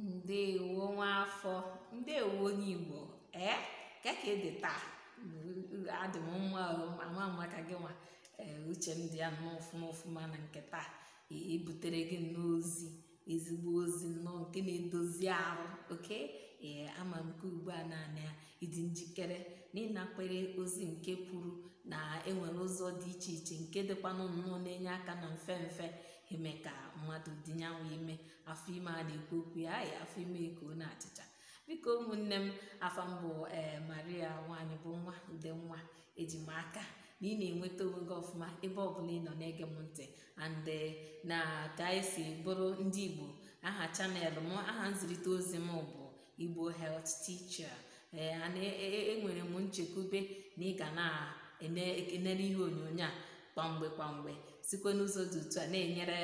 ndeewo nwaafọ ndeewo onye igbo ee eh? ka ka ị dị taa adị m nwa ama mma ka gị nwa ee eh, uche dị ya nnọọ ọfụma ọfụma na nke taa ebutere e gị n'ozi ezigbo ozi nnọọ nke na-edozi ahụ oke ee eh, ama m nke ugbu a naanị ya ịdị njikere na ịnakwere ozi nke kwuru na enwere ụzọ dị iche iche nke dịkwanụ nnọọ na-enye aka na mfe mfe eme ka mmadụ dinyanwe ime afọ ime a na-ekwu okwu ya ayị afọ ime ka ọ na-achịcha biko ụmụnne m afọ mbụ ee maria nwanyị bụ nwa ndị nwa ejimaka aka na ị na-enweta onwe gị ọfụma ebe ọ bụla ị nọ na-ege m ntị and e, na ka anyị e si bụrụ ndị igbo aha chanel m aha nzirịta ozi m bụ igbo health teacher ee e, enwere m nchekwube na ị ga na-enere ihe onyonyo a kwamgbe kpamgbe sikwa n'ụzọ dị otu a na-enyere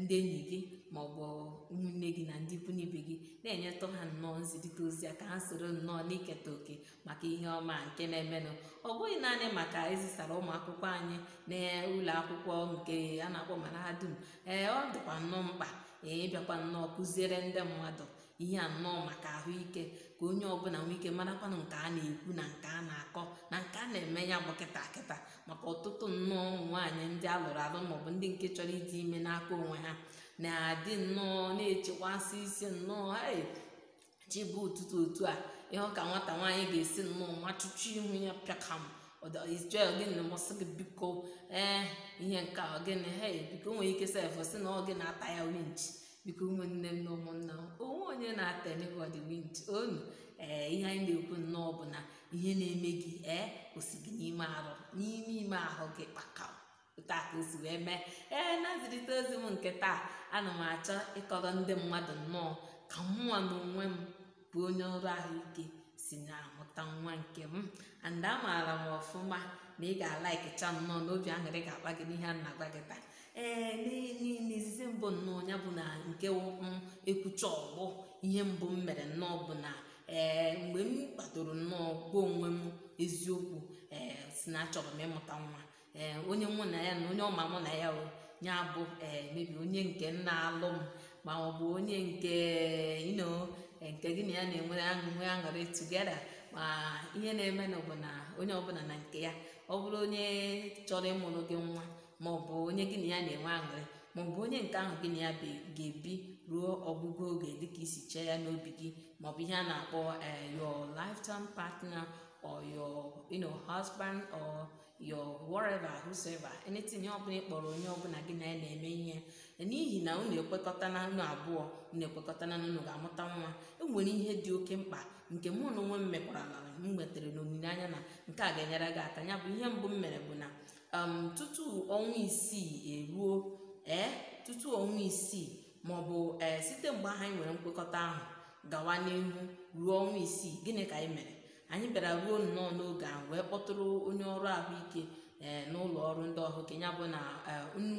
ndị enyi gị ma ọ bụ ụmụnne gị na ndị ikwu n'ibe gị na-enyetụ ha nnọọ nzirịta ozi a ka ha soro nnọọ n'iketa òkè maka ihe ọma nke na-emenụ ọ bụghị naanị maka ezisara ụmụ akwụkwọ anyị na ụlọ akwụkwọ nke a na-akpọ mahadum ee ọ dịkwa nnọọ mkpa ee ịbịakwa nnọọ kụziere ndị mmadụ ihe a nnọọ maka ahụike ka onye ọbụla nwee ike marakwanụ nke a na-ekwu na nke a na-akọ na nke a na-eme ya bụ kịta kịta maka ọtụtụ nnọọ nwaanyị ndị alụrụ alụ maọbụ ndị nke chọrọ ịdị ime n'aka onwe ha na-adị nnọọ na-echekwasị isi nnọọ chi bụ ụtụtụ otu a ịhụ ka nwata nwaanyị ga-esi nnọọ nwa chụchụ ihu ya pịakam gịnị masị gị biko ee eh, ihe nke a gịnị he biko nwere ike sefụ si na ọ gị na-ata ya winchi biko ụmụnne m na ụmụnna m onwe onye na-ata anybody wind onu ee eh, ihe anyị na-ekwu nnọọ bụ na ihe na-eme gị ee eh, osi gị n'ime arụ n'ime ime ahụ gị kpaka taa ka o wee mee ee eh, na nzirịta ozi m nke taa ana m achọ ịkọrọ ndị mmadụ nnọọ ka mụnwa na onwe m bụ onye ọrụ ahụike si na-amụta nwa nke m and amaara m ọfụma na ị ga-alaịkịcha nnọọ n'obi aṅụrị ga-agba gị n'ihe a na-agwa gị taa ee niile izizi mbụ nnọọ ya bụ na nke m ekwucha ọgbọ ihe mbụ m mere nnọọ bụ na ee mgbe m kpadoro nnọọ gwa onwe m eziokwu ee si na achọrọ m ịmụta nwa ee onye mụ na ya na onye ọma mụ na ya ya bụ ee eh, mebi onye nke nna alụ m ma ọ bụ onye nke ino eh, nke gị na ya na-enwe aṅụrị aṅụrị tugeda ma ihe na eme bụ na onye ọbụla na nke ya ọ bụrụ onye chọrọ ịmụrụ gị nwa ma ọ bụ onye gị na ya na-enwe aṅụrị ma ọ bụ onye nke ahụ gị na ya ga-ebi ruo ọgwụgwụ oge dịka isi chee ya n'obi gị ma ọ bụ ihe a na-akpọ eh, your lifetime partner or your you know husband or your whatever whosoever anything ọ bụla ịkpọrọ onye ọbụla gị na ya na-eme ihe n'ihi na unu ekwekọta na unu abụọ unu ekwekọta na unu ga-amụta nwa enwere ihe dị oke mkpa nke mụ na onwe m mekwara n'ala m nwetara n'olileanya na nke a ga-enyere gị aka ya bụ ihe mbụ m mere bụ na um tutu ọnwa isii eruo ee eh, tutu ọnwa isii maọbụ ee eh, site mgbe ahụ anyị nwere nkwekọta ahụ gawa n'ihu ruo ọnwa isii gịnị ka anyị mere anyị bịara ruo nnọọ n'oge ahụ wee kpọtụrụ onye ọrụ ahụike ee eh, n'ụlọ ọrụ ndị ọhụ nke bụ na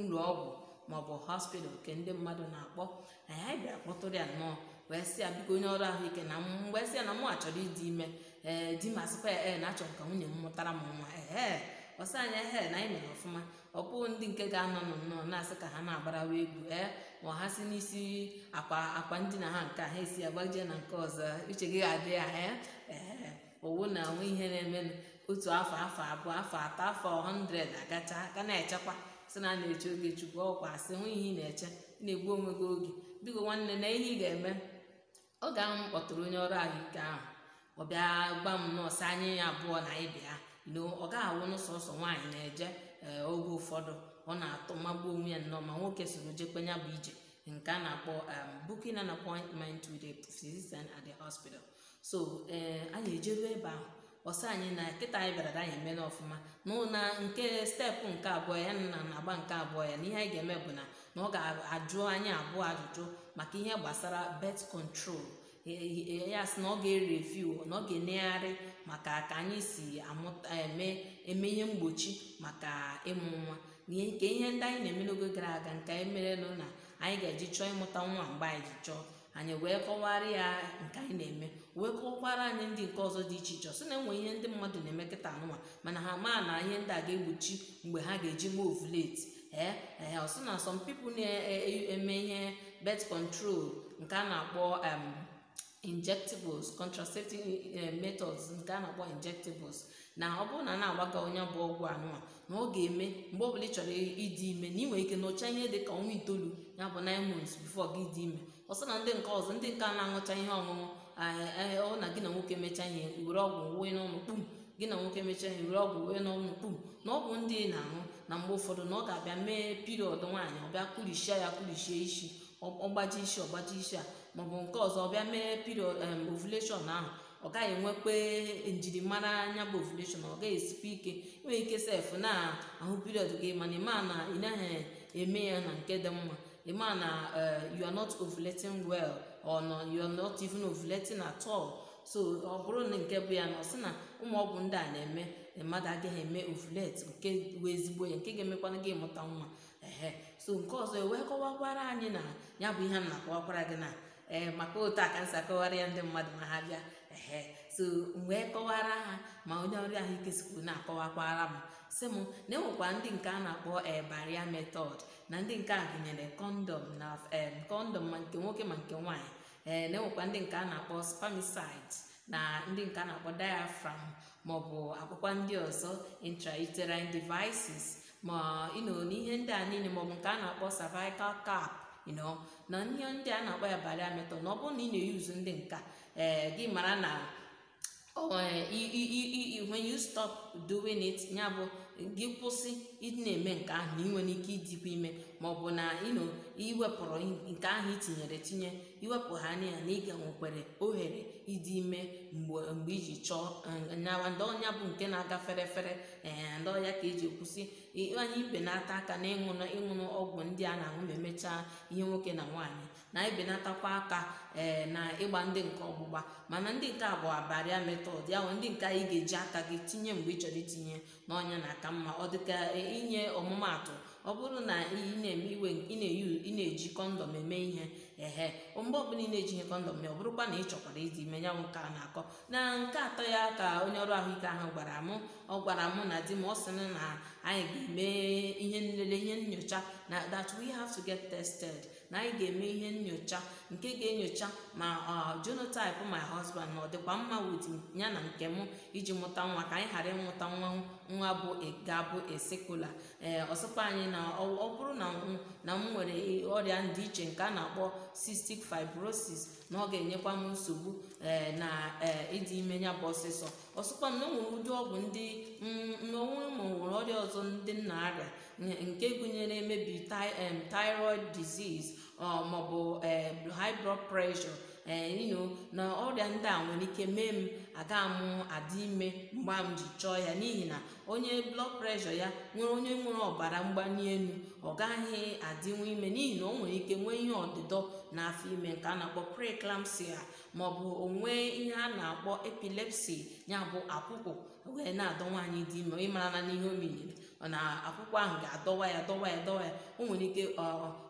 ụlọ ọgwụ maọbụ hospital nke ndị mmadụ na-akpọ anyị bịara kpọtụrụ ya nnọọ wee sị ya biko onye ọrụ ahụike na mgbe sị ya na mụ achọrọ ịdị ime ee di ma sịkwa ee na achọrọ ka nwunye m mụtara m nwa ee ọsa anya hel na anyị mere ọfụma ọpụ ndị nke ga-anọ nọ nnọọ na-asị ka ha na-agbarawa egwu ee eh? ma ha si n'isi akwa akwa ndina ha nke ha esi agbajie na nke ọzọ uche gị ga-adị ya ee eh? ee owu na onwe ihe na-emenụ otu afọ afọ abụọ afọ atọ afọ 100 agacha ka na-echekwa sị na na-eche oge chukwu ọkwa asị hụ ihe ị na-eche na-egbu onwe gị oge biko nwanne na ihe ị ga-eme oge ahụ m kpọtụrụ onye ọrụ ahụike ahụ ọ bịa gwa m nọọsụ anya abụọ na anyị na ọ gaghị awụ sọsọ nwaanyị na-eje eh, oge ụfọdụ ọ na-atụ magbuo onwe ya nnọọ ma nwoke soro jekwenya bụ ije nke a na-akpọ um, booking an appointment with a physician at the hospital so eh, anyị ejeruo ebe ahụ ọsọ anyị na nkịta anyị bịara anyị emela ọfụma na nke steepụ nke abụọ ya na na-agba nke abụọ ya na ihe anyị ga-eme bụ na na ọ ga-ajụ anyị abụọ ajụjụ maka ihe gbasara birth control ya sị na ọ ga-ereviu na ọ ga-enegharị maka ka anyị si amụta eme ihe mgbochi maka ịmụ nwa nke ihe ndị anyị na-eme n'oge gara aga nke anyị merelụ na anyị ga-eji chọọ ịmụta nwa mgbe anyị ji chọọ anyị wee kọwara ya nke anyị na-eme wee kọwakwara anyị ndị nke ọzọ dị iche iche sị na enwe ihe ndị mmadụ na-eme kịta anụnwa mana ha maa na ihe ndị a ga-egbochi mgbe ha ga-eji mee ovulate ee ee ọsị na some people na-eme e, e, ihe birth control nke a na-akpọ injectables contraceptive eh, methods nke a na-akpọ injectables na ọ bụrụ na a na agbaga onye bụ ọgwụ a na ọ ga-eme mgbe bụla ị chọrọ ịdị ime na ị ike nọchaa ihe dị ka ọnwa itoolu ya bụ nine months before gị dị ime ọsọ na ndị nke ọzọ ndị nke a na-aṅụcha ihe ọṅụṅụ eh, eh, ọ na gị na nwoke mechaa ihe were ọgwụ wee n'ọnụ kpum gị na nwoke mechaa ihe were ọgwụ wee n'ọnụ kpum na ọgwụ ndị na-aṅụ na mgbe ụfọdụ na ọ ga-abịa mee piriọd nwaanyị ọ bịa ya kụlichie isi ọgbaji isi ọgbaji isi a maọbụ nke ọzọ bịa mee period ovulation ahụ ọ gaghị enwekpe njirimara anya bụ ovulethon ọ gaghị esikwa ike nwee ike sef na ahụ period gị mana ịma na ị naghị eme ya na nke dị mma ịma na eh, you are not ovulating well or you are not even ovulating at all so ọ bụrụ na nke bụ ya na ọ sị na ụmụ ọgwụ ndị a na-eme mmadụ agaghị eme ovulet nke wee ezigbo ya nke ga-emekwana gị mụta nwa ehe so nke ọzọ ewee kọwakwara anyị na ya bụ ihe m na-akọwakwara gị na ee eh, maka otu a ka m akọwara ya ndị mmadụ ma ha bịa ehe so mgbe kọwara ha ma onye ọrụ ahụike sikwu na-akọwakwara m si m na enwekwa ndị nke a na-akpọ ee eh, baria na ndị nke a gụnyere kọndọm na kọndọm ma nke nwoke ma nke nwaanyị ee eh, na-enwekwa ndị nke a na-akpọ spamisid na ndị nke a na-akpọ diafram maọbụ akwụkwọ ndị ọzọ intrauterine devices ma ịnọ n'ihe ndị a niile maọbụ nke a na-akpọ cervical cap na ihe ndị a na-akpọ ya bari metọ na ọ bụrụ na ị na-eyuzu ndị nka ee eh, gị mara na Oh, eh, when you stop doing it ya bụ gị kwụsị ịna na-eme nke ahụ na ị nwere ike ịdịkwa ime ma ọ bụ na iwepụrụ nke ahụ itinyere tinye iwepụ ha na na ịga nwekwere ohere ịdị ime mgbe iji chọọ eh, nyawa ndị ọnya bụ nke na-aga ferefere fere eh, ndị ọya ka eji kwụsị anyị na-ata aka na ịṅụnụ ọgwụ ndị a na-aṅụ ma emechaa ihe nwoke na nwaanyị na-ebelatakwa aka ee eh, na ịgba ndị nke ọgbụgba mana ndị nke abụọ bụ abaria ya ndị nke anyị ga-eji aka gị tinye mgbe ị chọrọ itinye n'ọnya na aka mma ọ dịka inye ọmụmaatụ ọ bụrụ na ị na-eme iwe ị na-eji kọndọm eme ihe ehe mgbe ọbụla ị na-eji ihe kọndọm ya ọ bụrụkwa na ị chọkwara ịdị ime ya nwoke a na-akọ na nke atọ ya ka onye ọrụ ahụike ahụ gwara m ọ gwara mụ na di m ọ sịrị na anyị ga-eme ihe nlele ihe nyocha na that we have to get tested na anyị ga-eme ihe nnyocha nke ga-enyocha ma uh, genotype my husband na ọ dịkwa mma wit ya na nke m iji mụta nwa ka anyị ghara ịmụta nwa nwa bụ ga-abụ esekula ee eh, ọsọkwa anyị na ọ bụrụ na na m nwere ọrịa ndị iche nke a na-akpọ cystic fibrosis na ọ ga-enyekwa m nsogbu ee eh, na eh, ịdị ime ya bụ ọsịsọ ọsọkwa m na onwere ụdị ọgwụ ndị n'onwe ma nwere ọrịa ọzọ ndị nna arịa nke gụnyere emebi thyroid disease maọbụ e, high blood pressure ino e, na ọrịa ndị a nwere ike mee m aga mụ adị ime mgbe m ji chọọ ya n'ihi na onye blood pressure ya nwere onye nwere ọbara mgbali elu ọ gaghị adịnwu ime n'ihi na o nwere ike nwee ihe ọdịdọ n'afọ ime nke a na-akpọ preeclampsia maọbụ onwe ihe a na-akpọ epilepsy ya bụ akwụkwụ wee na-adọ nwaanyị dị ime ịmara na n'ihe o na akwụkwọ ahụ ga-adọwa ya dọwa ya dọwa ya o nwere ike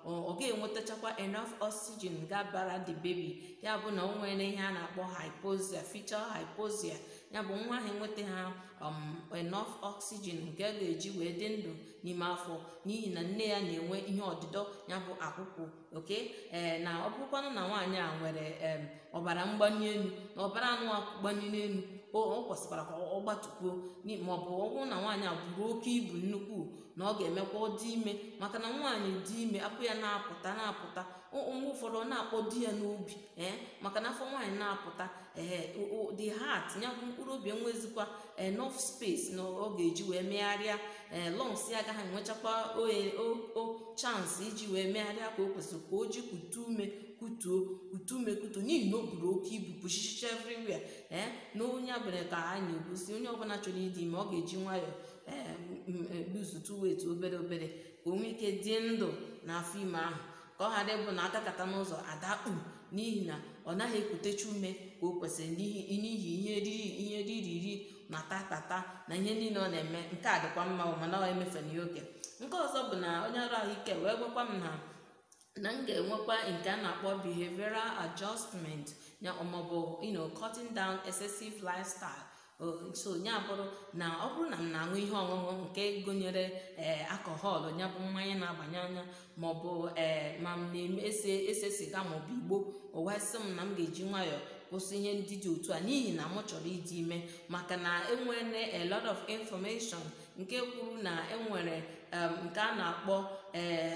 ọ ga-enwetachakwa enough oxygen ga-abara the baby ya bụ na o nwere ihe a na-akpọ hypoxia fetal hypoxia ya bụ nwa ahụ nweta ha um, enough oxygen nke a ga-eji wee dị ndụ n'ime afọ n'ihi na nne ya na-enwe ihe ọdịdọ ya bụ akwụkwọ oke ee eh, na ọ bụrụkwanụ na nwaanyị a nwere ọbara mgbanye elu na ọbara anụ gbanye o kwesịkwara ka ọ gbatukwuo ma ọ bụ na nwaanyị a bụrụ oke ibu nnukwu na ọ ga-emekwa dị ime maka na nwaanyị dị ime akwụ ya na-apụta na-apụta mgbe ụfọdụ ọ na-akpọ di ya n'obi ee maka na afọ nwaanyị na-apụta ee the heart nyabụ mkpụrụ obi enwezikwa enough space na ọ ga-eji wee megharịa ee lungs ya agaghị enwechakwa o chance iji wee megharịa ka o kwesịrị ka o ji kutu ume kutuo kutu ume kutuo n'ihi na o buru oke ibu pụchichicha everywhere ee na onye abụla ka anyị na-egosi onye ọbụla chọrọ ịdị ime ọ ga-eji nwayọọ ee gbuzutu wet obere obere ka o nwee ike dị ndụ na afọ ime ahụ ka ọ ghara ịbụ na adakata n'ụzọ adakpu n'ihi na ọ naghị ekutechi ume ka o kwesịrị n'ihi ihe riri ihe ririri na tatata na ihe niile ọ na-eme nke a dịkwa mma mana ọ emefena ya oke nke ọzọ bụ na onye ọrụ ahụike wee gwakwa m na na m ga-enwekwa nke a na-akpọ behavioral adjustment ya maọbụ you know down excessive lifestyle so ya bụrụ na ọ bụrụ na m na-aṅụ ihe ọṅụṅụ nke gụnyere ee akọhọlụ ya bụ mmanya na-abanye anya maọbụ ee ma m na-ese ese siga maọbụ igbo ụwasị m na m ga-eji nwayọọ kwụsị ihe ndị dị otu a n'ihi na m chọrọ ịdị ime maka na enwere a lot of information nke kwuru na enwere nke a na-akpọ ee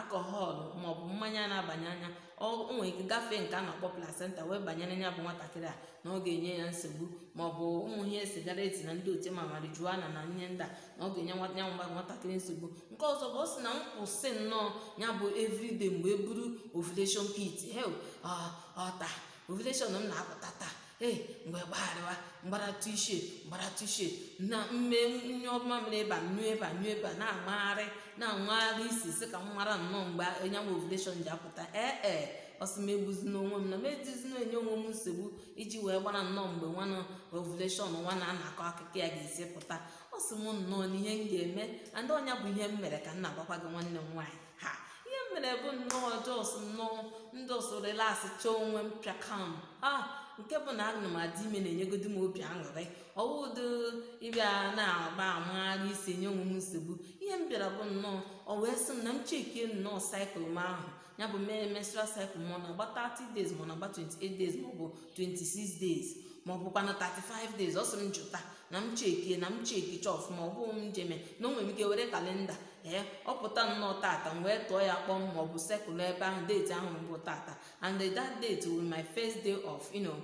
akọhọlụ maọbụ mmanya na-abanye anya onwe nwere gafee nke a na-akpọ placenta wee banyere ya bụ nwatakịrị a na ọ ga-enye ya nsogbu ma ọ bụ ụmụ ihe eti na ndị otu e ma marijuana na nye ndị na ọ ga-enye nwanya nwa nwatakịrị nsogbu nke ọzọ bụ ọ sị na m kwụsị nnọọ ya bụ everyday mgbe e buru ovulation kit hel ọta ah, ah, ovulation m na-apụta taa ee mgbe gbagharịwa mgbara tishet mgbara tishet na mmemme ọma mere ịba nyụ ịba nyụ ịba na-amagharị na-anwagharị isi isi ka m mara nnọọ mgbe anyanwụ ovulation ji apụta ee ee ọsị m egbuzi n'onwe m na m e edizina enye onwe m nsogbu iji wee gbara nnọọ mgbe nwana ovuleshọn nwa na anakọ akọ akụkọ ya ga-esi pụta ọ sị m nnọọ na ihe m ga-eme na ndị ọnya bụ ihe m mere ka m na-agwakwa gị nwanne m nwaanyị ha ihe m mere bụ nnọọ jọs nnọọ ndị ọsọ relax chọọ onwe m kam ha ah, nke bụ na adị ime na-enyegodi m obi aṅụrị ọwụdo ịbịa na-agba amagharị isi nye onwe m nsogbu ihe m bịara bụ nnọọ ọ wee sị m na m chekie nnọọ saịkụl m ahụ ya bụ mere menstrual cycle ọ na-agba 30 days ma ọ na-agba 28 days ma ọ bụ 26 days ma ọ bụkwa na 35 days ọ sị m jụta na m chekie na m chekie chọọ ọfụma ọ bụghị m jeme na o nwere m ike were kalenda ee ọ pụta nnọọ tata m wee tụọ ya kpọm maọbụ ọ sekụl ebe ahụ date ahụ mbụ tata and that date will my first day of you know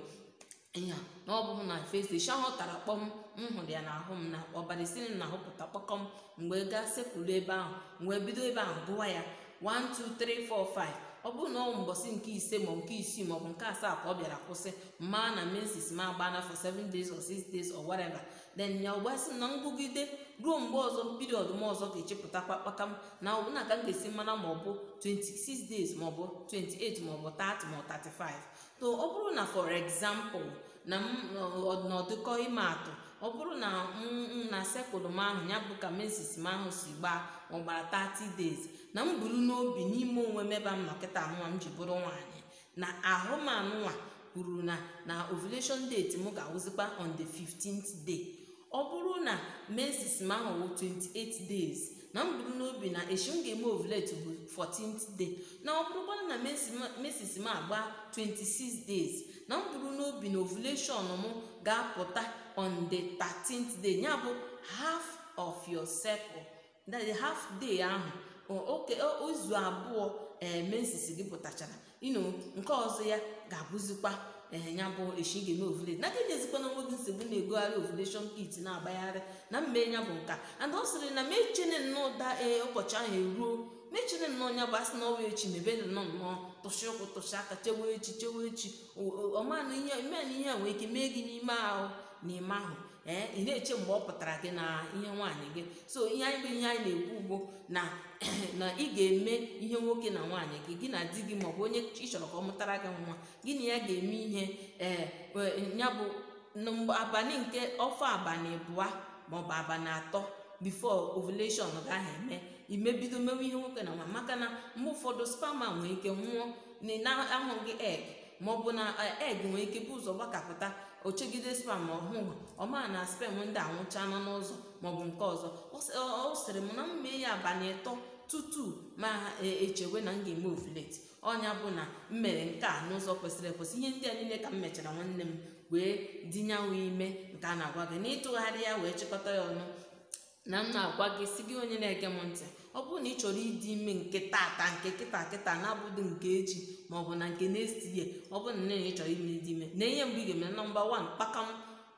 ya na ọ bụghị na first day shahụ tara kpọm m hụrụ ya n'ahụ m na ọbara na-ahụpụta kpọkọm mgbe gaa sekụl ebe ahụ mgbe bido ebe ahụ gụwa ya 1 2 3 4 5 ọ bụrụ na ọ mbọsị nke ise ma nke isii maọbụ nke asaa ka ọ bịara kwụsị mma na mensis ma agba na for seven days or six days or whatever then ya ọgbasị na ngụgide ruo mgbe ọzọ piriọd m ọzọ ga-echepụtakwa kpata m na ọbụna ka m ga-esi mara maọbụ ọ bụ 26 days maọbụ 28 maọbụ 30 ma 35 to ọ bụrụ na for example na ọdịnọdụkọ ime atụ ọ bụrụ na na sekụl m ahụ ya bụ ka mesis m ahụ si gbaa ọ gbara 30 days na m buru n'obi n'ime onwe m ebe m nọ nwa m ji bụrụ nwaanyị na ahụ m kwuru na na ovulation date m ga-awụzikwa on the 15th day ọ bụrụ na mesis m ahụ wụ 28 days na m buru n'obi na echi m ga-eme ovulate bụ 14th day na ọ bụrụkwana na mesis m agba 26 days na m buru n'obi na ovulation m ga-apụta on the 13th day bụ half of your circle that the half day ahụ oke izu abụọ eh, mensisi gị pụtachara ino nke ọzọ ya ga-abụzikwa eh, ya bụ echi ga-eme ovulate na ka na onwe gị nsogbu na-egogharị ovulation kit na-agbagharị na mme ya bụ nka and ọ sịrị na mechene nnọọ da eh, ụbọchị ahụ eruo mechene nnọọ ya bụ asị na ọwa echi mebe nnọọ nnọọ tụsị ụkwụ tụsị aka chewe echi chewe echi ọmanụ ihe a nwee ike mee gị n'ime ahụ n'ime ahụ ee eh, ị na-eche mgbe ọ pụtara gị na ihe nwaanyị gị so ihe anyị bụ ihe anyị na-ekwu ugbo na na ị ga-eme ihe nwoke na nwaanyị gị gị na di gị maọbụ onye ị chọrọ ka ọ mụtara gị nwa gị na ya ga-eme ihe ee eh, eh, ya bụ abalị nke ọfọ abalị abụọ maọbụ abalị atọ bifo ovulation gaghị eme imebido mewe ihe nwoke na nwa maka na mgbe ụfọdụ spama nwere ike nwụọ na-ahụghị egg bụ na eh, egg nwere ike bụ ụzọ gbakapụta ochegide spam ọhụụ ọma na spam ndị anwụcha nọ n'ụzọ maọbụ nke ọzọ ọ sịrị m na m mee ya abalị ịtọ tutu ma e, echewe na m ga-eme ovulet ọnya bụ na m mere nke a n'ụzọ kwesịrị ekwesị ihe ndị a niile ka m mechara nwanne m wee dinyanwe ime nke a na-agwa gị na ịtụgharị ya wee chịkọta ya ọnụ na m na-agwa gị si gị onye na-ege m ntị ọ bụrụ na ị chọrọ ịdị ime nke tata nke kịta kịta na-abụghị nke echi maọbụ na nke next ihe ọ bụrụ na nne ị chọrọ ime ịdị ime na ihe mgbe ị ga-eme nọmba 1 kpakam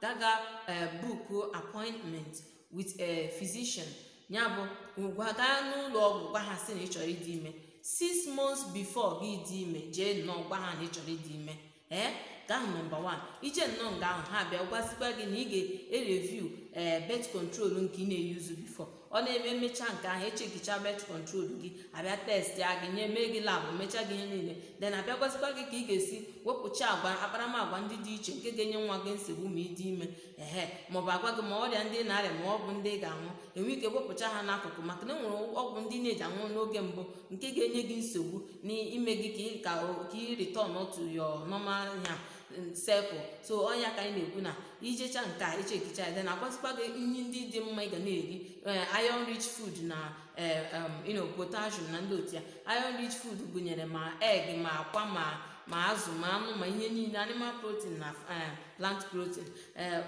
daga e, buku appointment with a physician ya bụ ngwa gaa n'ụlọ ọgwụ gwa ha sị na ị chọrọ ịdị ime six months before gị dị ime jee nnọọ gwa ha na ị chọrọ ịdị ime ee nke nọmba 1 ije nnọọ nga ahụ ha bịa gwazikwa gị na ị ga-ereviu ee birth control nke ị na-eyuzu before ọ na-eme mmecha nke ahụ echekicha met kọntrol gị abịa testị gị nye mee gị labụ mechaa gị ihe niile den abịakwasịkwa gị ka ị ga-esi wepụcha agwa akparamagwa ndị dị iche nke ga-enye nwa gị nsogbu ma ịdị ime ehe maọbụ agwa gị ma ọrịa ndị na-arịa ma ọ bụ ndị ga-anwụ enwe ike wepụcha ha n'akụkụ maka na enwere ọgwụ ndị na-eji anwụ n'oge mbụ nke ga-enye gị nsogbu n'ime gị ka ị rịtọn otu yo nọma ya sepụ so ọnya ka anyị na-ekwu na ijecha nke a ichekicha ya na agwazikwa gị nri ndị dị mma ị ga na-eri eh, iron rich food na eh, um, potassium na ndị otu ya iron rich food gụnyere ma egg ma akwa ma ma azụ ma anụ ma ihe niile animal protein na eh, plant protein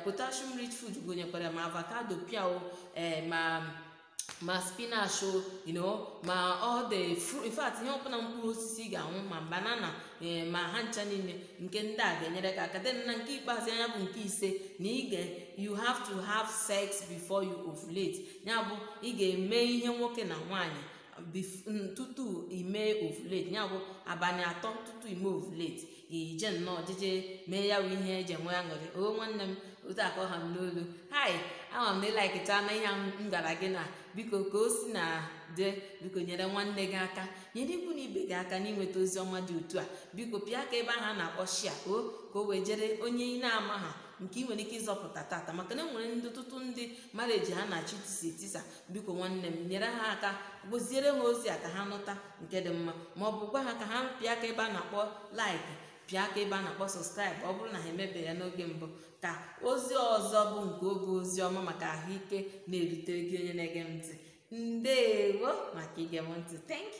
potassium rich food gụnyekwara ma avocado piao ma ma spinach you know ma ọ dị fru ihe ọbụla mkpụrụ osisi ga-anwụ ma banana eh, ma ha ncha niile nke ndị a ga-enyere ka aka na nke ikpeazụ anya bụ nke ise na ige you have to have sex before you ovulate ya bụ ị ga-eme ihe nwoke na nwaanyị tutu ime ovulate ya bụ abanye atọ tutu ime ovulate ije nnọọ mee ya bụ ihe eji enwe aṅụrị o nwanne m otu akọ ha m n'olu hai ama m na ịlaikịchana ihe m gara gị na biko ka o si na dị biko nyere nwanne gị aka nyere ikwu na ibe gị aka n'inweta ozi ọma dị otu a biko pịa aka ebe ahụ a na-akpọ shia o ka o wee jere onye ị na-ama ha nke ị nwere ike ịzọpụta tata maka na enwere ndị ọtụtụ ndị mmadụ eji ha na achị tisa etisa biko nwanne m nyere ha aka gboziere ha ozi a ka ha nụta nke dị mma ma ọ bụ gwa ha ka ha pịa aka ebe a na-akpọ laiki bịa ka ebe a na-akpọ sọskraịbụ ọ bụrụ na ha emebe ya n'oge mbụ ka ozi ọzọ bụ nke oge ozi ọma maka ahụike na erute gị onye na-ege m ntị ndewo maka ige m ntị thank